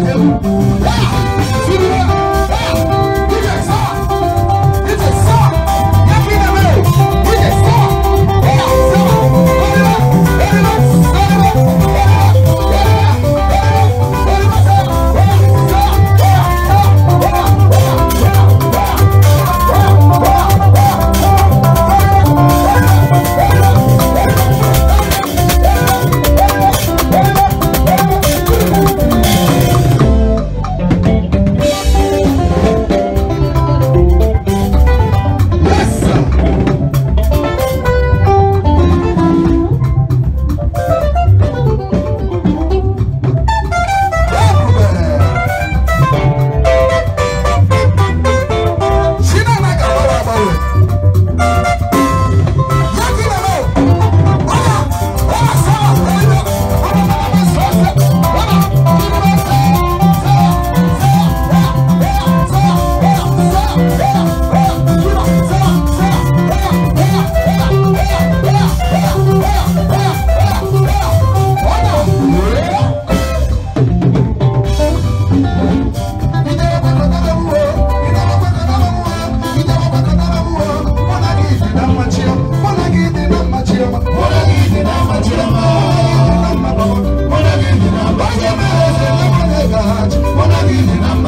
Música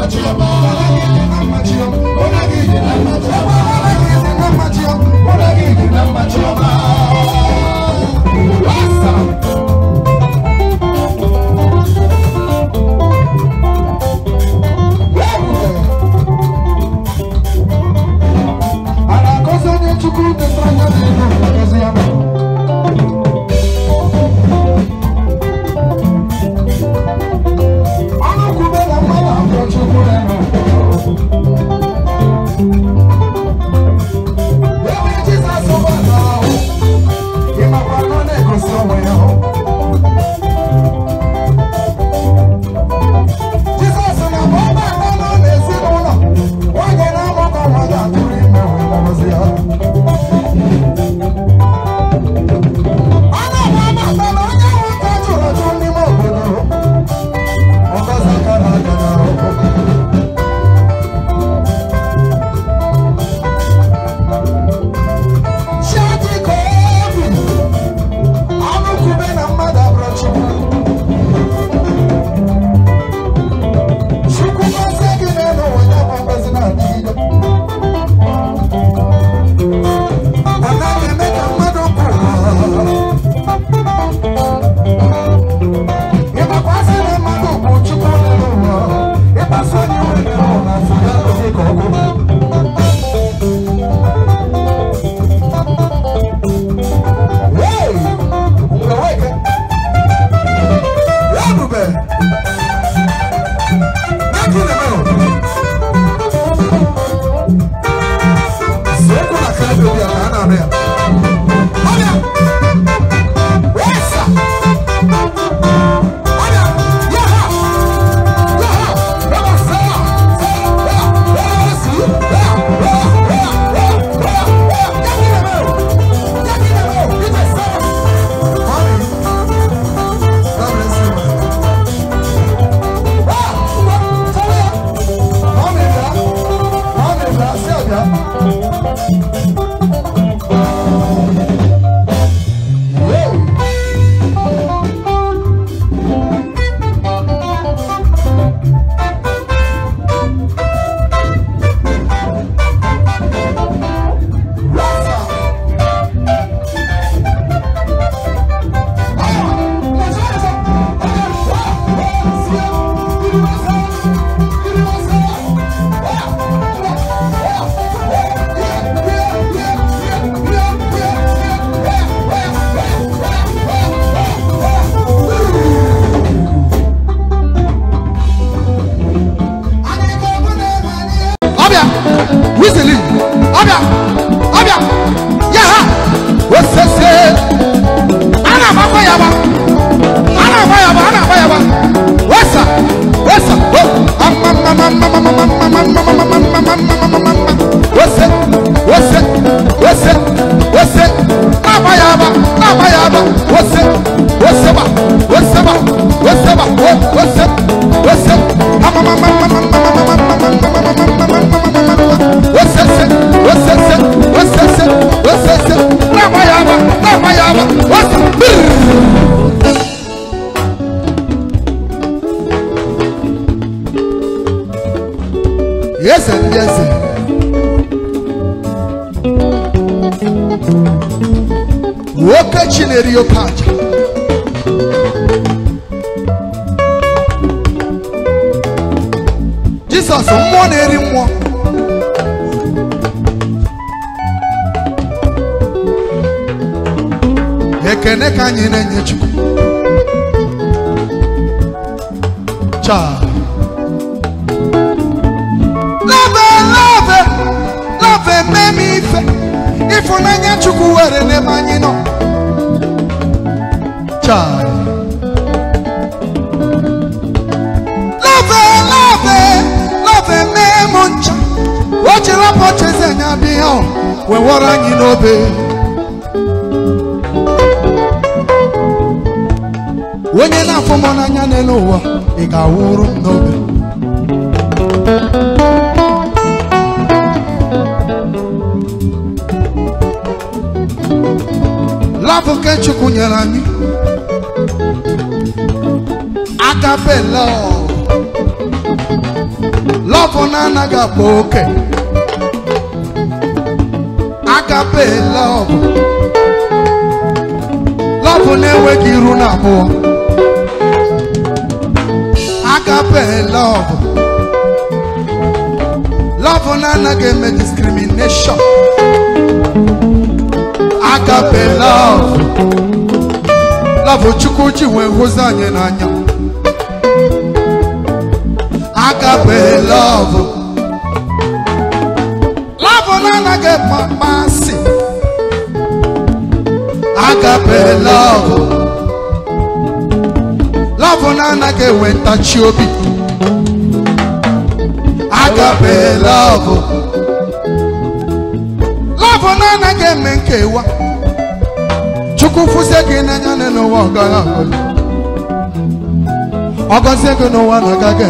Watch soco na câmera, minha cara, né? ndị na-eri mmụọ na-eri mmụọ ekene ka anyị na-enye chukwu chaa ife ịfụnanya chukwu were n'ebe anyị nọ child. Love, love, love, me muncha. Watch your poches and I'll be on. We were on you know, babe. When you're not from on an anelo, it got warm, no, babe. Love, catch you, Kunyalani. agabela love na anaghị agba oke agabela love love na-enweghị iru na abụọ agabela love love na anaghị eme discrimination agabela love love chukwu ji wee anya na anya. agape lọvụ lọvụ na-anaghị ekpe mmasị agape lọvụ lọvụ na na enwe ntachi obi agape lọvụ lọvụ na-anaghị eme nkewa chukwu fụzie gị n'anya n'ụwa ọgọzie gị n'ụwa na agaghị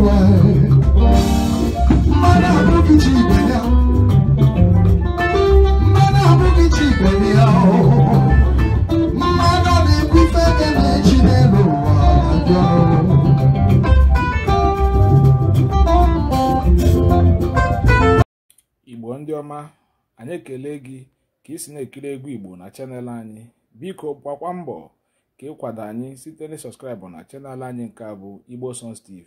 igbo ndị ọma anyị ekele gị ka isi na-ekiri egwu igbo na chanel anyị biko gbakwa mbọ ka ịkwado anyị site na sọskraịbụ na chanel anyị nke a bụ igbo songs tv